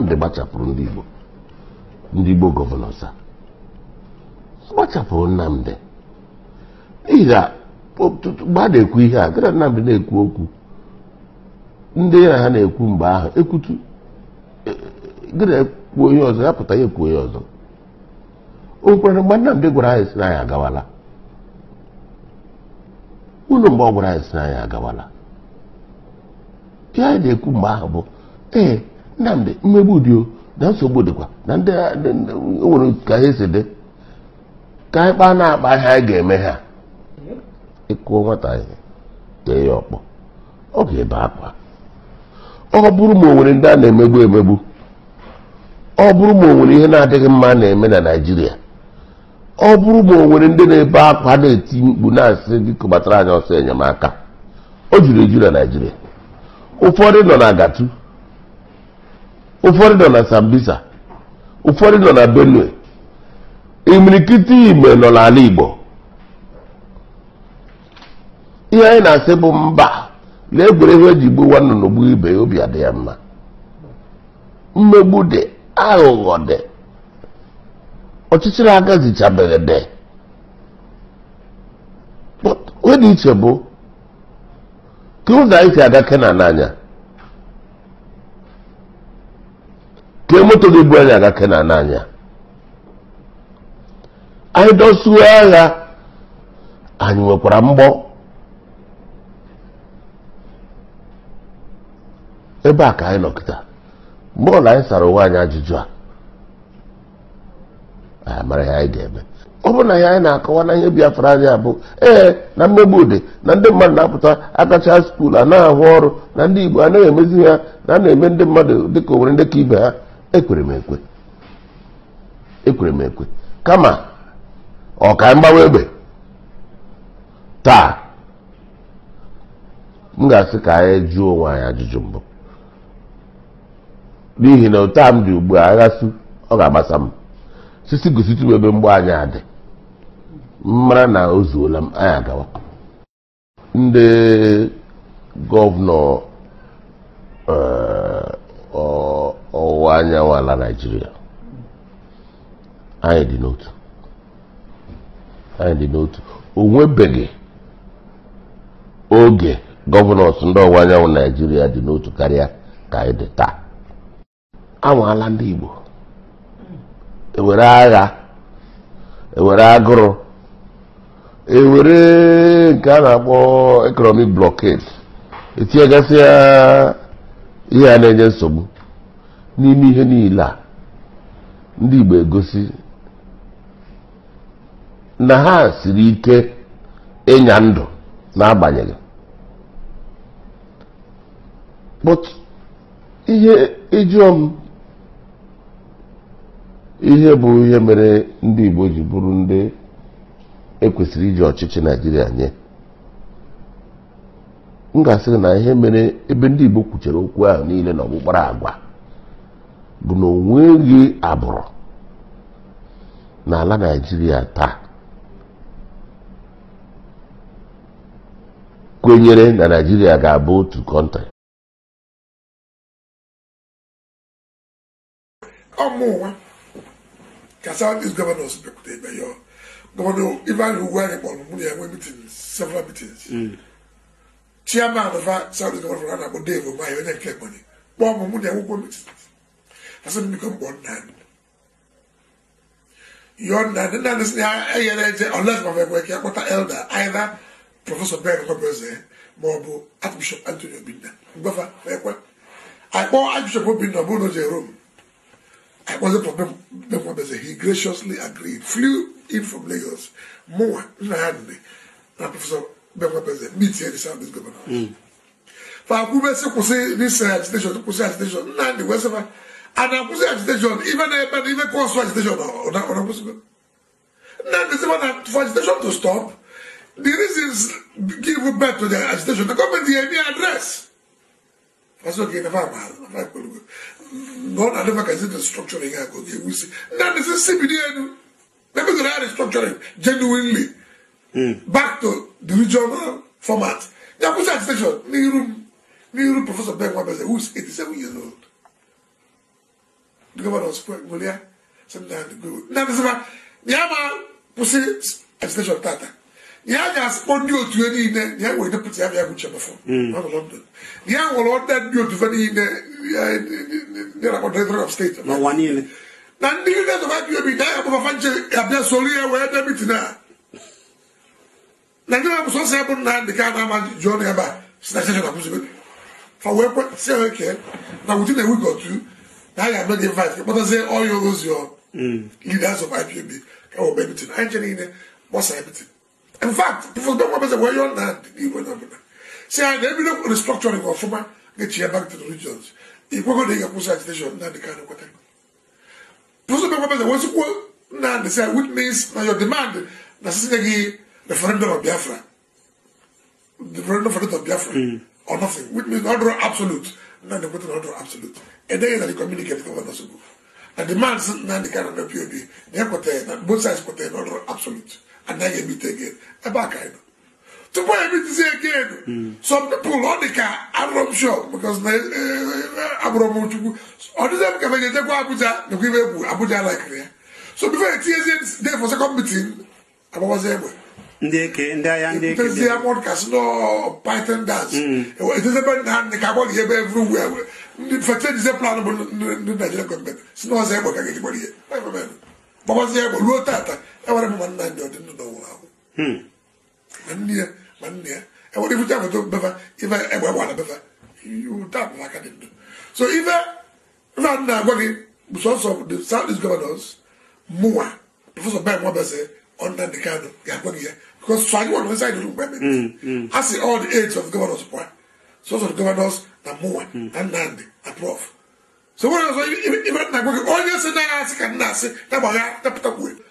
nnamdị gbachapụrụ ndị igbo ndị igbo gọvanọ sa gbachapụrụ nnamdị n'ihi na mgbe a na-ekwu ihe a dịka nnamdị na-ekwu okwu ndị ya na ha na-ekwu mgbe ahụ ekwutu ekwu onye ọzọ ya pụta ya ekwu onye ọzọ o nwekwara mgbe nnamdị gwara anyị si na anyị agawala unu mgbe ọ gwara anyị si na anyị agawala ihe anyị na-ekwu mgbe ahụ bụ ee nnamdị mmegbu dị o na nsogbu dịkwa na ndị nwere ka ha si dị ka anyị kpaa na-akpa ihe anyị ga-eme ha ịkụọ nwata ihe tee ya ọkpọ ọ ga-ebe akwa ọ bụrụ ma o nwere ndị a na-emegbu emegbu ọ bụrụ ma o nwere ihe na-adịghị mma na-eme na Naịjirịa ọ bụrụ ma o nwere ndị na-ebe akwa na-eti mkpu na-asị gị kụbatara anyị ọsọ enyemaka o juru eju na Naịjirịa ụfọdụ nọ na Agatu ụfọdụ nọ na Sambisa ụfọdụ nọ na Benue imirikiti igbe nọ n'ala Igbo ihe anyị na-asị bụ mba na egwuregwu eji gbuwa nnụnụ ibe obi adị ya mma mmegbu dị aghụghọ dị ọchịchịrị agazichabeghị dị dị iche bụ ka ụzọ anyị si aga Kenan n'anya tie moto gị bụ anyị aga kenan n'anya anyị dọsuo agha anyị nwekwara mgbọ ebe a ka anyị nọkịta mgbe ọla anyị sara onwe anyị ajụjụ a anyị mara ihe anyị ga-eme ọ bụ na ihe anyị na-akọwa na ihe biafra anyị abụ ee na mmegbu dị na ndị mmadụ na-apụta akacha skuul a na-ahụ ọrụ na ndị igbo anaghị emezi ha na a na-eme ndị mmadụ dịka owere ndị ka ibe ha ekwere m ekwe kama ọ ka mgbawa egbe taa m ga-asị ka anyị jụọ onwe anyị ajụjụ mbụ n'ihi na ụta m dị ugbu a aghasị ọ ga-agbasa m sisi gositi m ebe mgbe anyị adị mara na o zuola m anyị agawa ndị gọvanọ eh, anyanwụ ala naijiria anyị dị n'otu anyị dị n'otu onwebeghi oge gọvanọs ndị ọwụwa anyanwụ naijiria dị n'otu karịa ka anyị dị taa ala ndị igbo ewere agha ewere agụrụ ewere nke a na-akpọ economic blockade etinyegasị ihe a na-enye nsogbu n'ime ihe niile a ndị Igbo egosi na ha siri ike ịnya ndụ n'agbanyeghị but ihe ịjụọ m ihe bụ ihe mere ndị Igbo ji bụrụ ndị ekwesịrị iji ọchịchị naijiria nye m ga-asịrị na ihe mere ebe ndị Igbo kwuchara okwu ahụ niile na ọkpụkpara agwa bụ na onweghị abụrụ n'ala naijiria taa kwenyere na naijiria ga-abụ otu kọntrị ọmụwa ka southeast governors bịakwute ebe ya gọvanọ ivan ugwu anyị kpọrọ mụ na ya nwee mitin several mitins hmm. chairman of southeast na-akpọ dave omaye onye nke mụ na ya ɛsɛ mi kɔ bɔ nan yɔ nan ne nan sini ɛyɛ dɛ nkyɛn ɔlɛs ma akɔta elder either professor bɛn kɔ bɛ zɛ ma ɔbo archbishop anthony obinna gbɛfa ɛkɔ akpɔ archbishop obinna ɔbo n'o jɛ rome I zɛ pɔ bɛn kɔ bɛ zɛ he graciously agreed flew in from lagos mua nna ha nne na professor bɛn kɔ bɛ zɛ meet here the south east governor faako bɛ this kusi research station kusi station nna de wɛsɛ fa. And I'm anakusi agitation even ebene uh, even kosu agitation onakusi then they say well for agitation to stop the reasons give back to the agitation the government dey me address faso ke nafa ama nafa ekpolugo no I never can see the structuring i go get we see then they say cbd enu maybe they are restructuring genuinely mm. back to the regional format yakusi agitation n'iru room. professor ben wabese who is eighty seven years old. the governor was Golia, sometimes go. Now, this is about Yama Pussy Extension Tata. Yanga has only to any in there, Yang will put Yanga Gucha before. Hmm. Not London. Yang will order you to any in there about the of state. No one in. Now, do you know what you be there? I'm going to find Abia Solia where they're meeting now. Nigeria was also able to the Ghana man John Eba. Snatching up for work, see how I can. Now, within a week or two that guy not invite but I say all oh, you lose your mm. leaders of IPOB can obey everything actually in what's everything in fact people don't want to say where you're not you will not say I never look at the structuring of former get you back to the regions if we're going to get a push agitation not the kind of what I'm Puso bɛ kɔfɛ wɔsi ko na de sɛ which means na your demand na sisi de ki referendum of Biafra referendum of Biafra. Mm or nothing, which means not draw absolute. Now the button not draw absolute. And then you communicate with one also. And the man said, now the kind of POB, they have got both sides got not draw absolute. And then you meet again. A back kind of. To buy me to say again, some people on the car, I'm not sure, because eh, eh, I'm not sure. On the same car, they go Abuja, they go Abuja like there. So before it they for second meeting, I was able ndeke ndị agha ndị eke bịa akpọrọ kasị nọ python dance etezebe na ka akpọrọ ihe ebe everywhere ndị fete dize plan bụ ndị naijiria gọọmenti si na ọzọ egbe ka ga-ejigbara ihe gbabazie egbe ruo tata enwere mma nna ndị ọdị ndụ n'ụwa ahụ hmm. ma nne ya ma nne ya enwere ifucha foto befa ife egbe gbara befa taa bụ aka dị ndụ so ife nna nna agwa gị bụ sọsọ the south east governors mụwa prọfesọ ben nwabese under the kind of Yakwaniye. Because Swahili was inside the room. Mm, mm. I see all the aides of the governors. point. So of the governors, Namuwa, mm. and Nandi, approve. So when I was even Nagwaki, all you said, I said, I said, I said, I said, I said, I said,